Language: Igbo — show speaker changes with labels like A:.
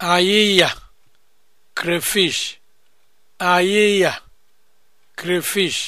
A: Ayịya crayfish, ayịya crayfish